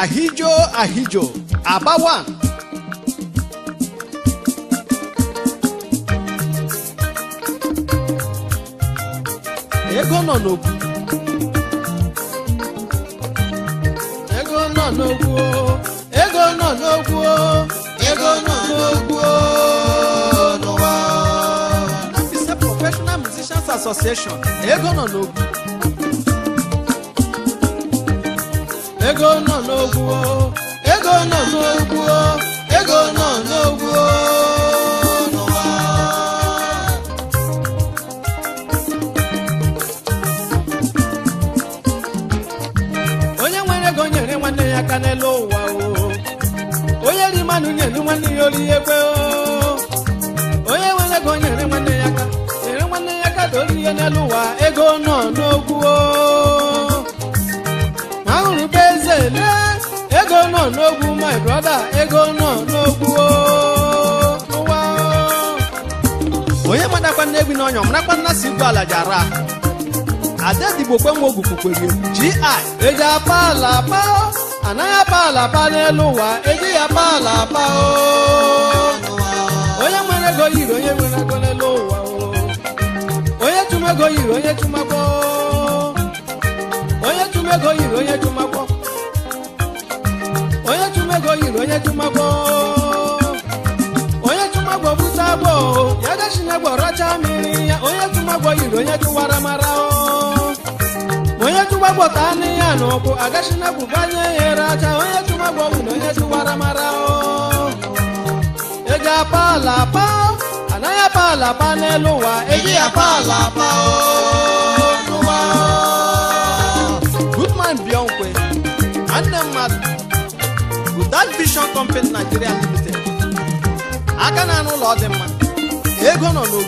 àhíjó àhíjó àbá wà. ego nọ n'okwu ego nọ n'okwu ego nọ n'okwu ego nọ n'okwu n'ụwa. That is a professional musicians association ego nọ n'okwu. ego nọ n'ogwu ego nọ n'ogwu ego nọ n'ogwu n'ụwa onye nwere ego nyere nwanne ya aka n'elu ụwa o. onye ri mmanụ nyere nwanne ya olu ihe kwe onye nwere ego nyere nwanne ya aka nyere nwanne ya aka ka ihe n'elu ụwa ego nọ n'ogwu nọ n'ogwu my brother ego nọ n'ogwu ụwa onye madakwa na egwu n'ọnya marakwa nna si igwe ala Ada ara adadigbokwe nwa ogwukwukwere gi eji apa ala apa anaghị apa ala apa n'elu ụwa eji ya apa ala apa onye nwere ego yiri onye nwere ego n'elu ụwa onye chụmego yiri onye chụmakpọ onye chụmego yiri onye chụmakpọ yiri onye jumagbo onye jumagbo bute agbo ya gashinyagbo oh. eh, racha mmiri ya onye jumagbo yiri onye juwara mara onye jumagbo taa onye a n'ụkwụ agashinyagbo banye ya racha onye jumagbo bụ na onye juwara mara ego apa ala apa anaghị apa ala apa n'elu ụwa ego ya apa ala oh, apa nwanne mmadụ that vision company Nigeria limited aka na anụ ụlọ dị mma ego nọ n'owu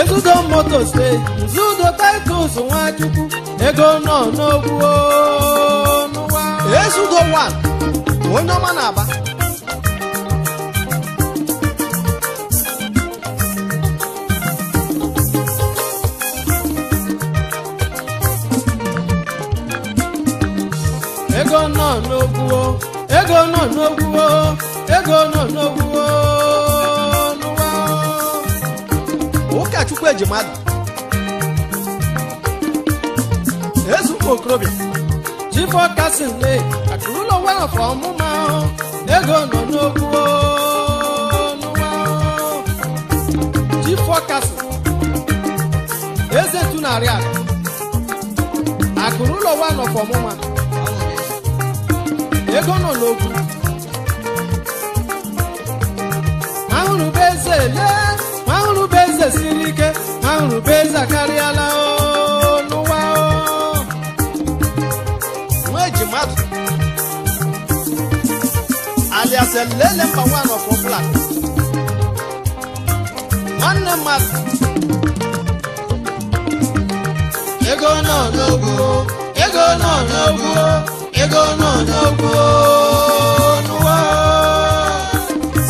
ezudo motos nzudo titles nwachukwu ego nọ n'ogwu n'ụwa ezudo one onye ọma na-aba nọ n'ogwuwo ego nọ n'ogwuwo n'ụwa ụkọchukwu ejimadu ezumma okorobịa jifọ kasin le akụrụlọ welafọ ọmụma ego nọ n'ogwuwo n'ụwa jifọ kasin eze tunarị akụ akụrụlọ welafọ ọmụma ego n'ụlọ okwu ahụrụ bụ eze lee eze siri ike ahụrụ bụ eze akarịala n'ụwa nwa eji mmadụ alias elele mba nwanọ fọbụla nwanne mmadụ ego nọ n'ogwu ego nọ n'ogwu ego n'onyogo n'ụwa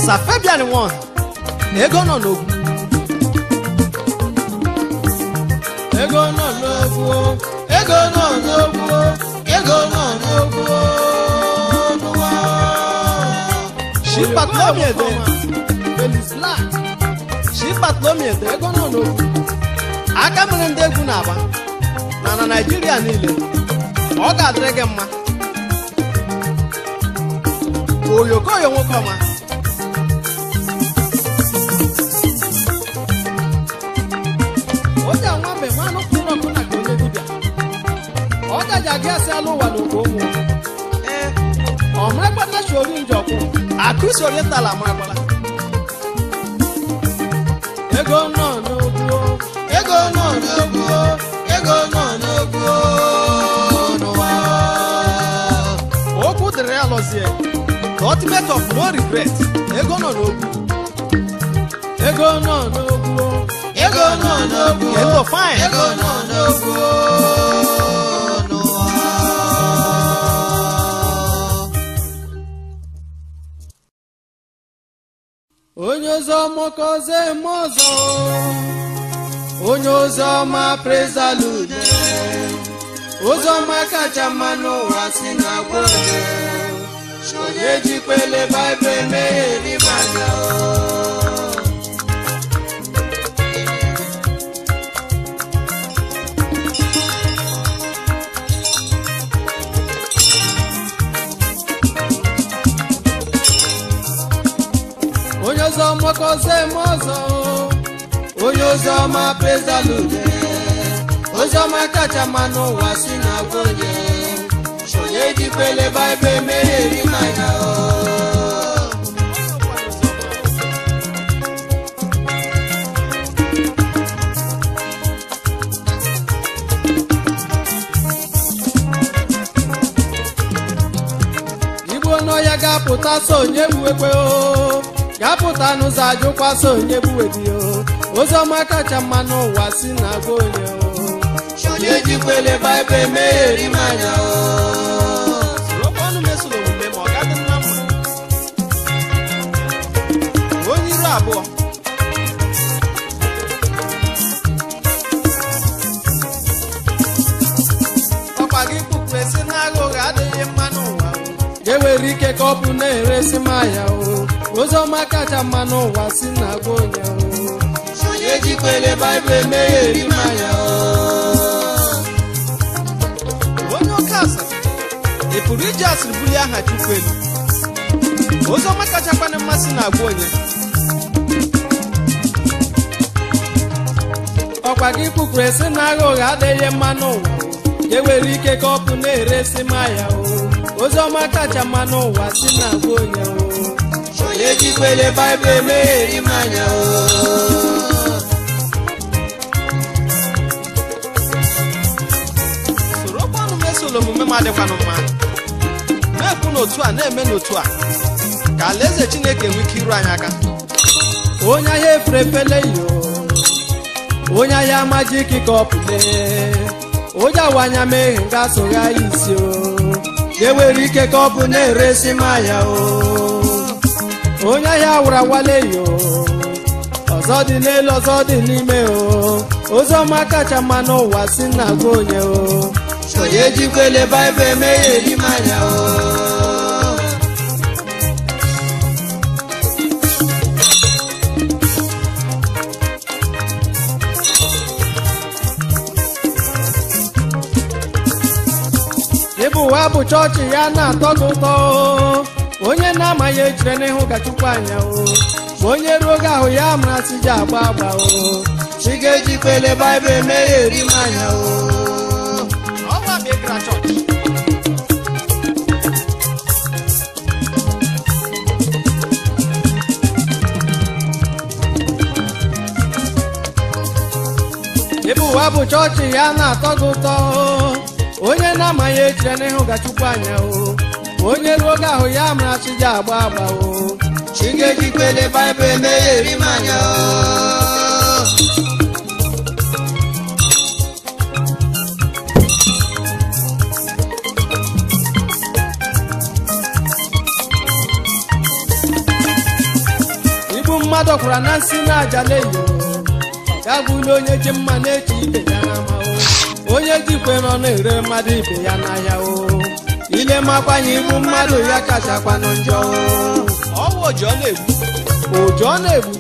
safebian wọn ego nọ n'ogwu ego nọ go. ego nọ go. ego nọ n'ogwu n'ụwa shipatlomi ede felisla shipatlomi ede ego nọ n'ogwu aka mere ndị egwu na-agba na na naijiria niile ọ ga-adịrị gị mma oyokoyo wọn kọ ma. ọjà wọn bẹ̀ máa ló kúnlọ̀ kúnlọ̀ kí ó lé bíbíà ọjà jàgé ẹsẹ̀ ló wà lóko wọn. ọmọ ẹgbẹ́ náà sori ń jọ̀kọ́ àkúsọ̀ orí ta làmọ́ agbára. ego náà no kú ego náà no kú ego náà no kú No nù O ó kú dèrè àlọ́ the ultimate of no regret ego nọ n'okwu ego nọ n'okwu ego nọ n'okwu ego fine ego nọ n'okwu onye ozi ọma kọzie eme ọzọ onye ozi ọma prezalude ozi ọma kacha mma n'ụwa si na gwa ṣòye jí pele me mẹ́rin bàtà o. Onyozo moko se mozo, onyozo ma praise the Lord, onyozo ma kacha manu wa sinagoye. ejikwele baịbụl emere eri mmanya igbo ya ga-apụta so onye gbuwekwe o ga-apụta n'ụzọ ajụkwa so onye gbuwebi o oziọma kacha mma n'ụwa si na-agwa onye o onye jikwele baịbụl emere eri mmanya o mere ka ọ bụ na-eresi maya o oziọma kacha mma n'ụwa si na agwa onye onye jikwere baịbụl eme ya eri maya onye oke asịrị ị e pụrụ iji asịrị bulie aha chukwu elu oziọma kacha kwana mmasị na agwa onye ọkwa gị kwukwuru esi na agha ụgha adịghị mma n'ụwa e nwere ike ka ọ bụ na-eresi maya o ozioma kacha mma n'ụwa si na bụ onye onye jikwele baịbụl emegheri m soro sorokwanụ mesolo omume m adịkwanụ mma na-ekwu n'otu a na-eme n'otu a ka alaeze chineke nwee ike iru anyị aka onye ahịa eferefeleyo onye ahịa amajiki ka ọ onye awanya meghe nga sogha isi ewere ike ka ọ bụ na-eresi m ahịa onye ahịa wụrụ awaleyo ọzọ dị n'elu ọzọ dị n'ime o oziọma kacha mma n'ụwa si na gwa onye o onye jikwele baịbụl emeghe eri m anya o abụ chọọchị ya na-atọ ụtọ onye na-amaghị ejire n'ihu gachukwu anya ma onye ruo oge ahụ ya mara si ji agba agba o chi ga ebe kpele baịbụl eme eri m anya o ebe ụwa bụ chọọchị ya na-atọ gị ụtọ onye na-amaghị ejire na ga anya o onye ruo oge ahụ ya mara chi ji agba agba o chigejikwele baịbụl emeghe eri m anya o mmadụ kwara na nsị na aja na-eyo ga bụ onye ji mma na-eji ibe ya na onye jikwe nọ na-ere mmadụ ibe ya n'ahịa o ile makwanye ibu mmadụ ya kachakwanụ njọ ọwụ ụjọ na-egbu ụjọ na-egbu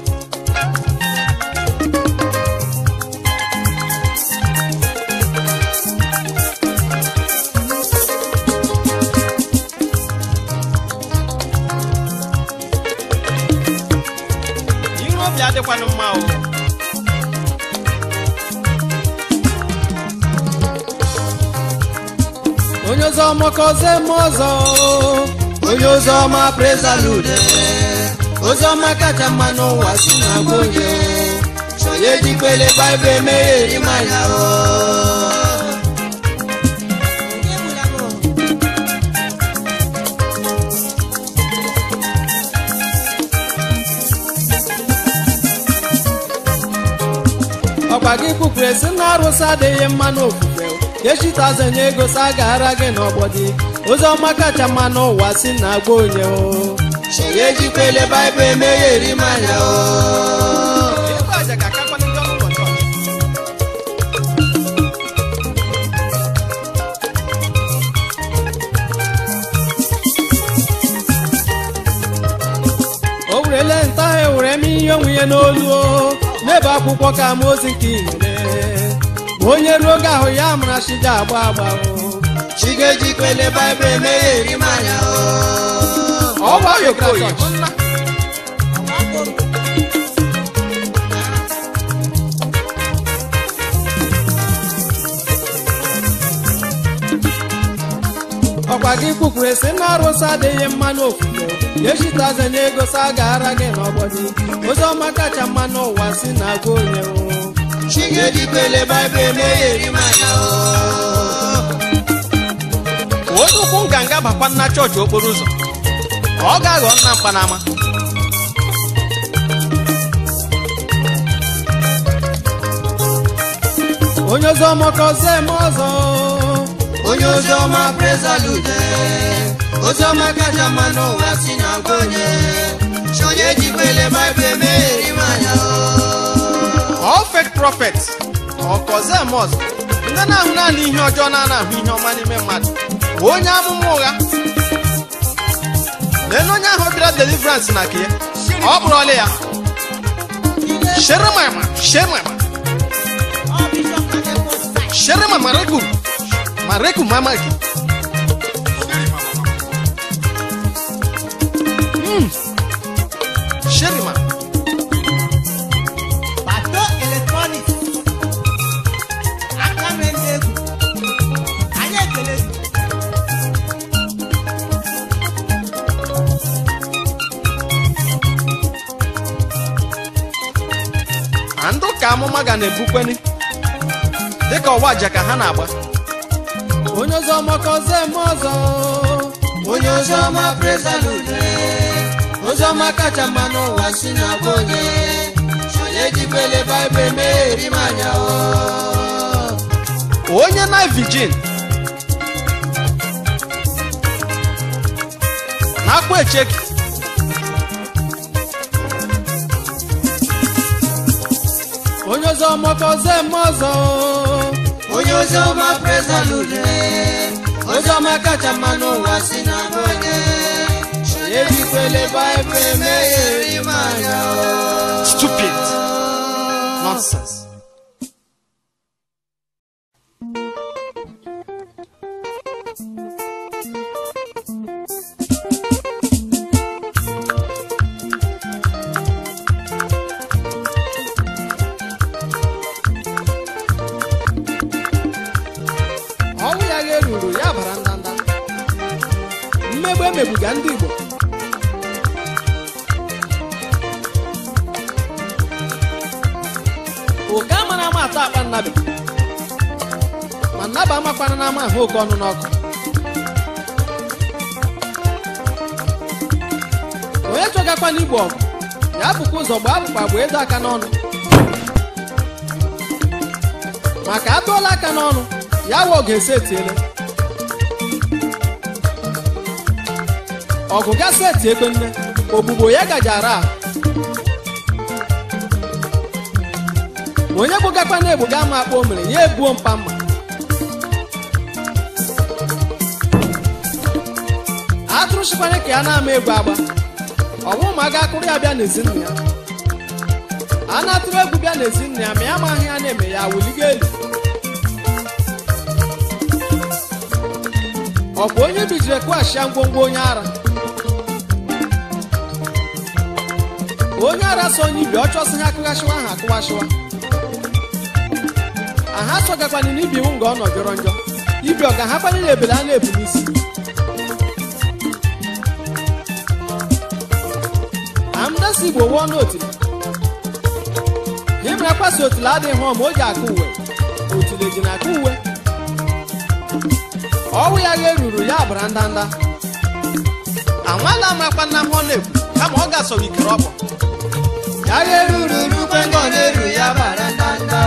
adịkwanụ mma o onye ọzọ mọkọze m ọzọ onye ọzọ ọma prezalude oziọma kacha mma n'ụwa si na gwa onye onye baịbụl emeghe eri manya ọkwa gị kwupụrụ esi na arụsị adịghị mma n'ofufe echitazanye ego sa ara gị n'ọgbọ dị oziọma kacha mma n'ụwa si na agba onye o chere ejikwele baịbụl emeghe eri mmanya o o nta ahụ ewere m ihe onwe ya n'olu o n'ebe akwụkwọ ka ozi nke igbo onye ruo oge ahụ ya mụrụ chi agba agba chi ga ọkwa gị kwukwu esi na arụsị adịghị mma n'ofufe echitaze na ego sa gara gị n'ọgbọdị ozi ọma kacha mma n'ụwa si na agụ onye chigedibele baịbụl emeghe eri manya ozukwu oh. nganga bakwa nna chọọchị okporo ụzọ ọ ga-aghọ nna mkpanama onye oziọma kọzie m ọzọ onye oziọma prezalude oziọma kacha mma n'ụwa si na nke onye chi onye jikwele baịbụl emegheri manya o oh. all fake prophets ọkọzemos ndị na-ahụ naanị ihe ọjọọ na-anahụ ihe ọma n'ime mmadụ onye amụma ụgha lee onye ahụ bịara deliverance na nke ọ kpụrụ ọlị ya shere sheremama sheremama rekum ma rekum mama gị na-ebukweli dịka ọwa aja ha na-agba onye ọzọ makọze m ọzọ onye ọzọ ọma prezalude ozi ọma kacha mma n'ụwa si na onye onye jibele baịbụl meeri manya onye na vijin na akpụ echeki moto mokoze mozo onye oziọma prezalude oziọma kacha mma n'ụwa si na bonye ebikwele baịbụl emegheri manya stupid nonsense imegbuga ndị Igbo oke ama na ama ata akpa nnabi ma nnaba amakwana na ama ahụ oke ọnụ n'ọkụ onye chọgakwa n'igbo ọgụ ya bụkwa ụzọ gbaa abụkpa gba edo aka n'ọnụ maka atụọla aka n'ọnụ ya wa ga ese etiele ọgụ ga seti egbenne ogbugbo ya gajara onye gbogakwa na egbuga ama akpọ mere ya egbuo mpa mma atụrụ chịkwanye ka ya na-ama egbu agba ọ ọnwụ ma a akụrụ ya bịa n'ezinụlọ ya a na-atụrụ egwu bịa n'ezinụlọ ya ma ya amaghị ya na-eme ya wuligo elu ọ bụ onye bijiri kwashia ngwongwo onye ara onye ara so onye ibi ọ ha akụghasịwa ahụ akụwasịwa aha sọgakwana na ibi iwu nga ọ jọrọ njọ ibi ọ ga-ahakwanye na ebele a na-ebu n'isi amdasi igbo wụọ n'otili ịmara kwasị otili adịghị hụọ ma o akụ uwe otili ji na akụ uwe ọwụ ya gha eruru ya bara ndanda anwala amakwa nna m ọ na-ekwu kama ọ ga-asọ ikere ọkpọ Barandanda oh.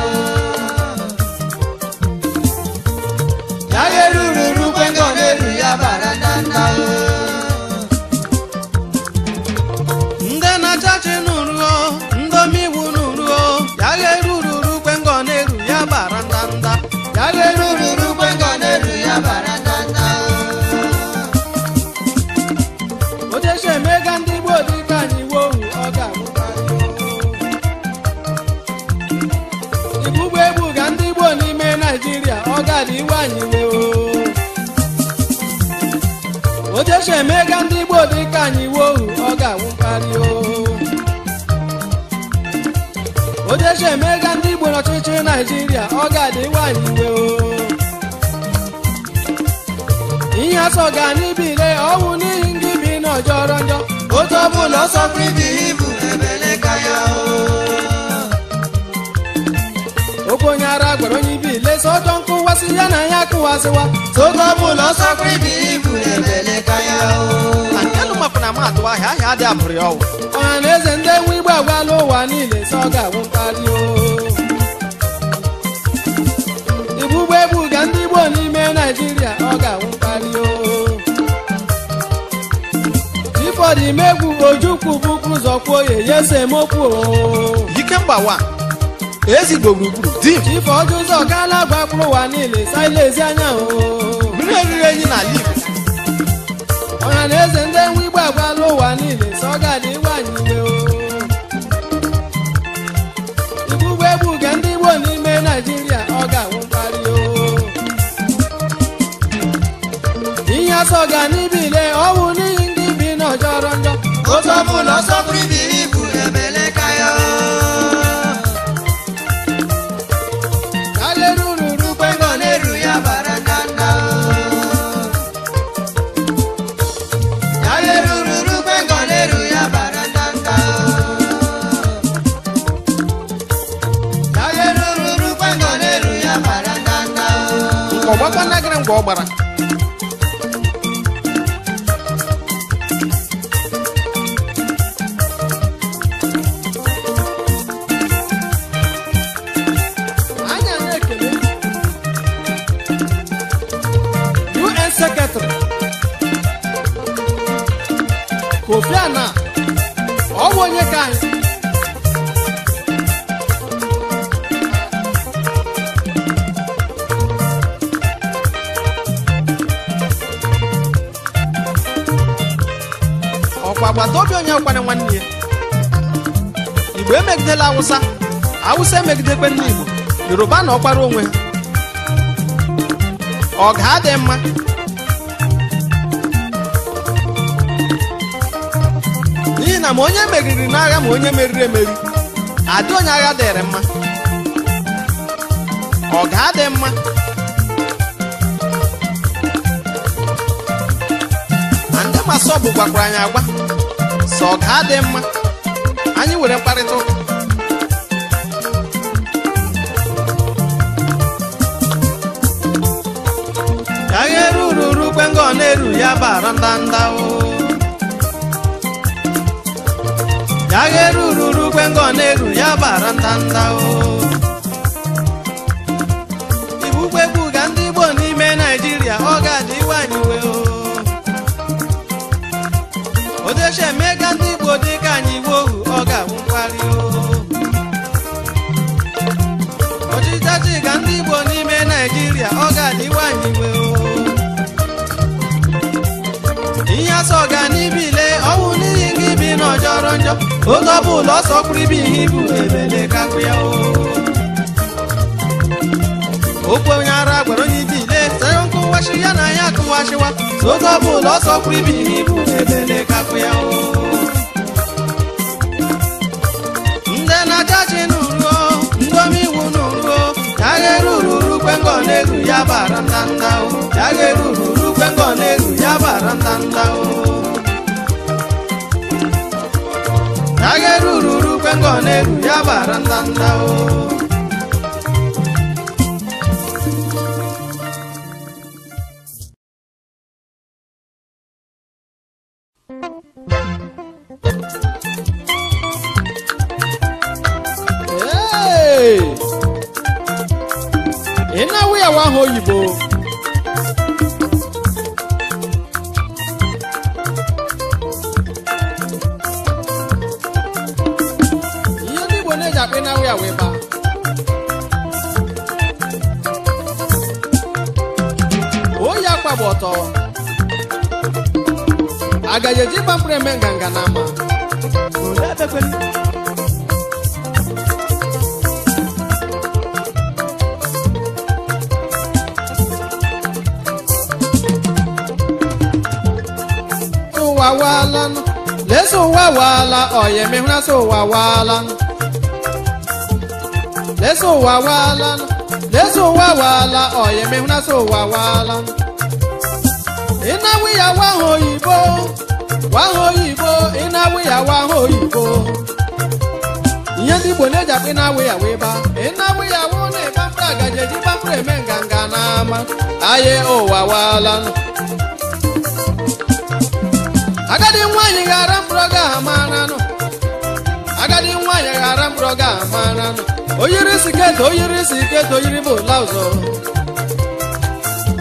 anyị o ojecha emega ndị Igbo dịka anyị ọ ga-awụ mkparị o ojecha emega ndị Igbo n'ọchịchị Naịjirịa ọ ga-adị nwanyị anyị iwe o ihe asọ ga anyị bire ọnwụ n'ihi ndị bi n'ọjọrọ njọ otu ọbụla bụla ọsọ ibu ebeleka o ọbụ onye ara gwara onye ibi ile so ọjọ nkụwasị ya na ya akụwasịwa soge ọbụla ọsọkwa ibe ibu ebeleka ya antelụ makwụna ma atụ ahịa ahịa adị abụrị ọwụ ọha na eze ndị enwe igbo agwala ụwa niile si ọ ga-awụ mkparị o ibugbo egbu ga ndị igbo n'ime naijiria ọ ga-awụ mkparị o ifọdụ imegwu ojukwu bụkwa ụzọ kwuo oye ya esemokwu o mgbawa! Ezi ezigbo gburugburu dim ife ọjọọ ụzọ ọkaala agba mkpụrụ ụwa niile sailezi anya mmiri oriri enyi n'ala Igbo ọha na eze ndị enwe igbo agbaala ụwa niile sọ ọ ga-adị iwanyile igbu ụgbọ egbu nke ndị igbo n'ime naijiria ọ ga-awụ mkparị ihe asọ n'ibile ọ ọnwụ n'ihi ndị bi n'ọjọrọ njọ otu ọbụla ọsọ pụrụ ibi. ọkwa agbata obi onye ọkwara nwanne ya igbo emegidela awụsa awụsa emegidekwe ndị igbo yoruba na ọkwara onwe ha ọ ga-adị mma n'ihi na ma onye meriri n'agha ma onye meriri emeri adị onye agha dịrị mma ọ ga-adị mma bụ gwakwara anyị agwa sọ ọ adị dị mma anyị were mkparịta ụka ka eru uru uru na-eru ya bara ndanda uru oge ọ bụla ọsọ kwuru ibe ihe ibu ebelekapụ ya okwu onye ara gwara onye ibe ile tanye nkụ ya na ya akụwashiwa oge ọ bụla ọsọ kwuru ibe ihe ibu ebelekapụ ya ndị na-aja ji n'uruo ndị omeiwu n'uruo ya ghere ururu kwengo na-eru ya bara ndanda ya ghere ururu kwengo na-eru ya bara ndanda ngone yabarandanda o Hey! Ina we are one whole agajeji gbapụrụ eme nganga na ama ụwa waala leso ụwa waala ọyemehụra so ụwa waala leso ụwa waala leso ụwa waala ọyemehụra so ụwa waala ịna wiya wa oyibo waha oyibo ị na-awụ ya waha oyibo ihe ndị igbo na-eji akpị na-awụ ya wee ba ị na-awụ ya wụ na ịbafere agaji eji bafere eme nganga n'ama aye ụwa wala agadi nwaanyị ghara mkpụrụ ga amananụ agadi nwaanyị ghara mkpụrụ ga amananụ oyiri siket oyiri siket oyiri bụ laụzọ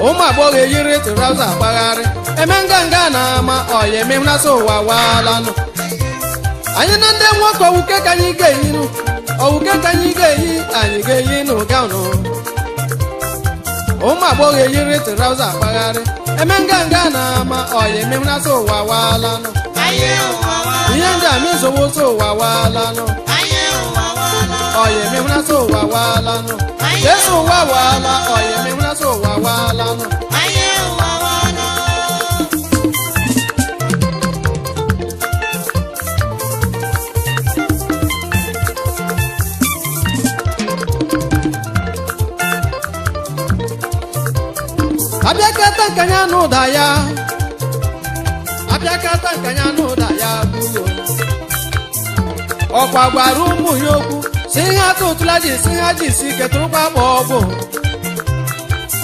ụmụ agbọghọ eyiri tụraụzọ agbagharị emenganga na ma oye mehuna so wa walanu anyị na ndị nwoke owuke ka anyị ga-eyinu owuke ka anyị ga-eyi anyị ga-eyinu gaụnụ ụmụ agbọghọ eyiri traụza agbagharị eme nganga na ama oyi emehuna so ụwa waalanụ ihe ndị a mezowo so ụwa waalanụ oyi emehuna so ụwa waalanụ jesu ụwa waala oyi emehuna so ụwa waalanụ abịakata ka ya na ụda ya ọkwa gwara ụmụ ya okwu si ihe ata ụtụla ji si ha ji si ketụrụkwa akpa ọgwụ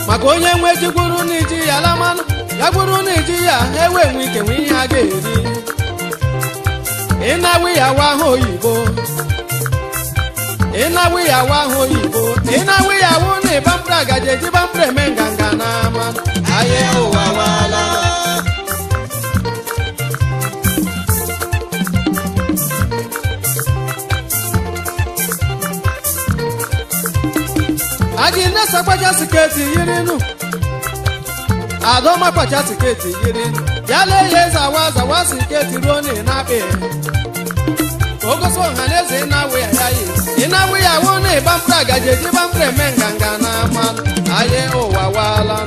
maka onye nwe jikwuru na iji ya lamanụ ya gwuru n'iji ya ha ewe nwe ike nwe ihe a ga-eri ịnawe ya wa oyibo Ịnawe ya wa ahụ oyibo ịnawe ya awụ na ịbambra gaji eji bambra eme nganga n'ama anyị ụwa wala aji nnesa kpacha siketi nụ adọma kpacha siketi yirinu ya lee ya eze awa zawa siketi ruo na ịnakpe na eze ịnabụ ya wụ na ịbamfere agaji eji bamfere eme nganga na ama anyị ụwa waala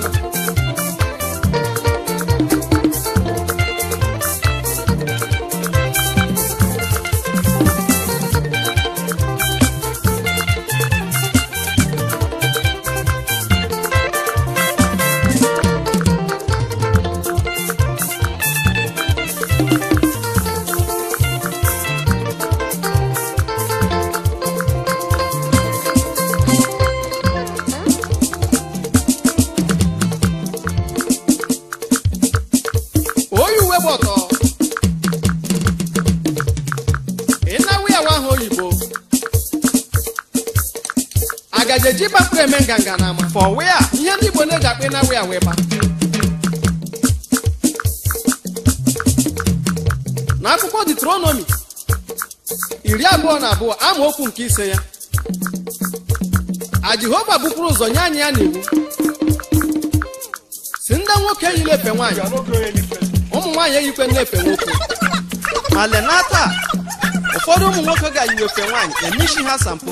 for where ihe ndị Igbo na-eji akpị na where wee ba na akwụkwọ Deuteronomy iri abụọ na abụọ okwu nke ise ya a Jehova bupụrụ ụzọ nye anyị ya n'iwu si ndị nwoke eyila efe nwaanyị ụmụ nwaanyị eyikwe na-efe nwoke ma lenata ụfọdụ ụmụ nwoke ga-eyiwe efe nwaanyị emechi ha sampo.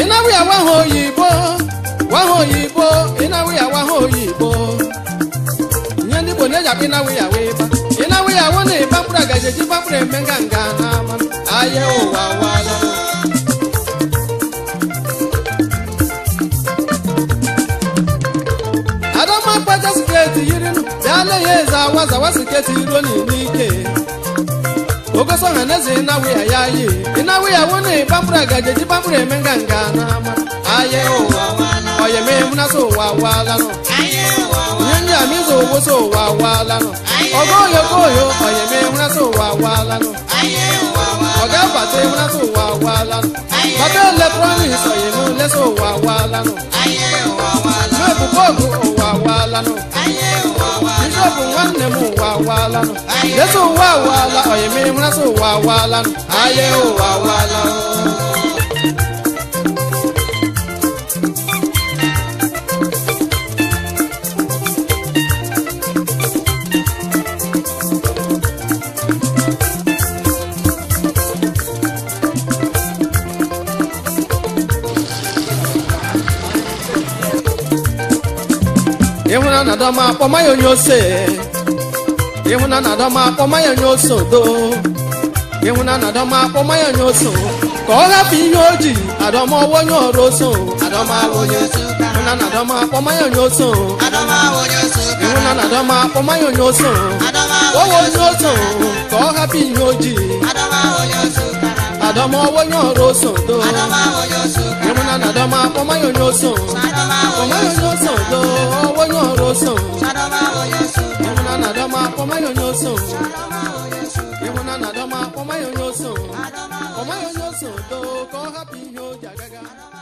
ị na-awụya na-eji akpa ịnarụ ya wee ba ịnarụ ya wụ na eji mkpụrụ eme nganga n'ama ahịa ụwa wala adama kpaja siketi yiri dala ya eze awa zawa siketi ike. okosonga nezinawe ayaye inawe yawone bambura gajeji bambura emengangana aye oye memuna sowawalano nyenya mizowo sowawalano ogoyogoyo oye memuna sowawalano ọ̀gá bàtẹ́ múná tó wà wá lánà. bàtẹ́ electronics ọ̀yẹ̀mú lẹ́sọ̀ wà wá lánà. ayé wà wá lánà. mẹ́kùn bọ́ọ̀gù ọ̀wà wá lánà. ayé wà wá lánà sọ́ọ̀bù wọn nà mú wà wà lánà. Jésù wà wà lánà, ọ̀yẹ̀mí múná sọ wà wà lánà. Ayé ò wà wà lánà. adọma akpọmaya onye ose ịhụnana adọma akpọmaya onye ose odo n'adama poma akpọmaya onye ose ka ọ hapụ ihe o ji adọma ọwa onye ọrụ oso ịhụnana adọma akpọmaya onye ose ịhụnana adọma akpọmaya onye ose ọwa onye ose ka ọ hapụ ihe o ji nadoma wo nyo roso do nadoma wo nyo so yomuna nadoma poma yo nyo so nadoma wo nyo nyo so do wo nyo roso nadoma wo nyo so yomuna nadoma poma yo nyo so nadoma wo nyo so yomuna nadoma poma yo nyo so nadoma wo nyo so do ko happy yo jagaga